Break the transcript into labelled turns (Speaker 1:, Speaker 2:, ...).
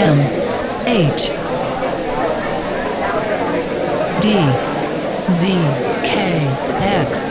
Speaker 1: M H D Z K X